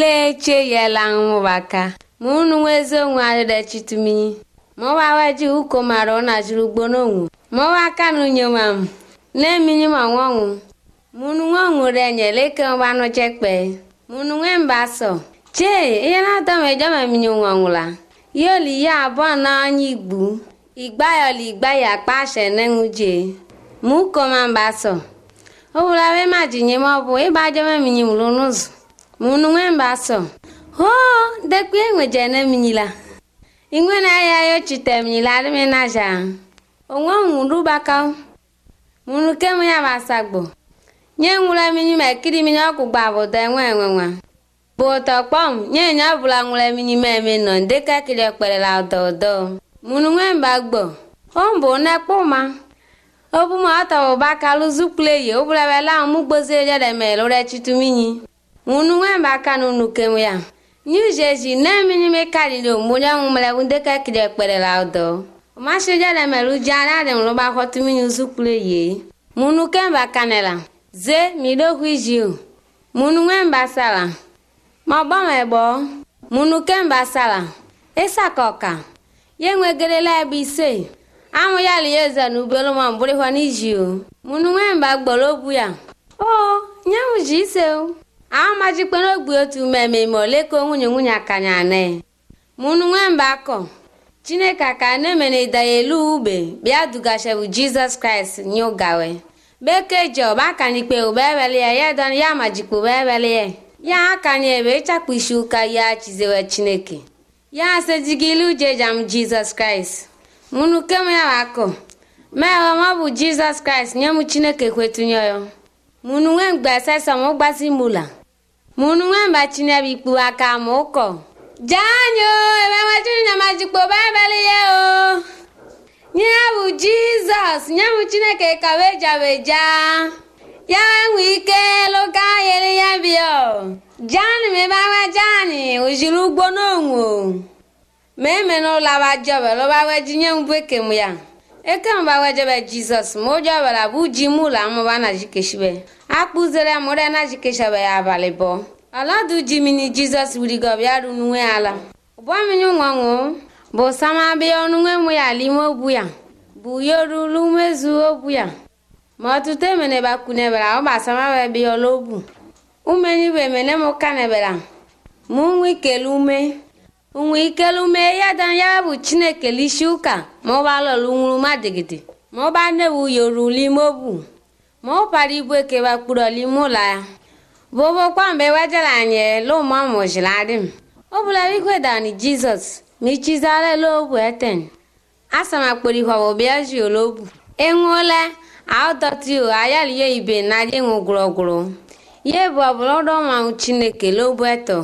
lee cheyela ṅuvaka muunu wezi onwe adidachituminyi mowa weji uko mara unajiri ugbonowu mowa kanunye wam neminyi manwonwu munu nweonwurenyeeleke wanuchekpe munu nwe mbaso chee ihe na-atomejomeminyi nwonwula yoli ya abụọ na anya igbu igba yoli igba ya kpashe nenwuje mukoma mbaso owulawe majinye maọbụ ịgbajomeminyi mulu n'ụzọ munu so ho dekwi engwejene na ingwene ayayo chite mnyila alime naja onwe munu bakao munu kemu yabasagbo nye ŋula minyi me kiri minyi okugba bodo enwe kpom nye nye bula ŋula minyi me mi nɔ ndeka kiri okpere la ododo munu gbo ombo kpoma obu ma otobo bakalu zukule ye obula bela omugbozi ejo de me lo re chitu minyi ŋunu ŋan b'a ka nu nu kem ya nyu jesu ne mini mi ka li lo mo ɖe ŋu mle ŋudɛ ke kele kpe ɖe la dɔ ma so ɖe le lu dza la ɖem lo ba xɔ tu mi nyu sukulu ye ŋunu kem b'a ka ne la ze mi ɖo hui zi o ŋunu ŋan b'a sa la ma bɔ me bɔ ŋunu kem b'a sa la esa kɔ ka ye ŋue geɖe la bi se amu ya li ye ze nubelo ma bori xɔ ni zi oh, o ŋunu ŋan b'a gbɔ bu ya o nyɛ ŋu zi se o. amajikpena ogbi otu mmemme ole ka nwunye nwunye akanya ane mụnụ nwemba akọ chineke ka na-emere idaya elu ube bịa dugashebu jizọs kraịst nye ụgawe bekee ji ọba ikpe ụba eweli ya ya dan ya majikpe ụba eweli ya ya akanya ebe ịchapụ isi ụka ya chizewe chineke ya asejigili uje jam jizọs kraịst mụnụ kem ya akọ mee ọ bụ jizọs kraịst nye m chineke kwetunye ya munu ŋen gbɛsɛ sɔmu gbasi mu la munu ŋen ba tsinɛ bi kpu aka mu kɔ. jaanyo ebe ŋmɛtiri nyamadikpo baibali ye o nyebu jizọs nyebu chineke kawejaweja ya ŋu ike lụka yeli ya bịa o jaani mi bawa jaani ozuru ugbo n'onwu o ma eme n'ụlọ awa jọbe lụba weji nye mbụ ekem ya ekem ba wejebe jizọs ma ụjọbe la bụ ji mụ ụlọ amụba na jikeshibe akpụzere mụrena jikechaba ya abalị bụ ọladujimini jizọs wirigọbịa runwe ala ụbọmiri nwanwo bụ samabịa ọnụnwe mụ ya alime obu ya bụ yorulu mezu ogbu ya ma ọtụtụ emene bakunebara ọgbasamabebi ologbu umenyiwe emene mụkanebara ma unwe ikele ume unwe ikele ume ya da ya bụ chineke lishi ụka ma ọbalọlu nwuru madigide ma ọba nnewu yorulu ime ogbu mopali bue ke bakpuroli mu la bobo ọmụ wajalanye lo m. Ọ bụla bikweda ni jizọs michizala lobu eten asamakporihwawo biaji olobu enwuola aodotio ihe ibe na enwugwurogwuru Ihe bụ ọbụlọdọmanwụ chineke lobu eto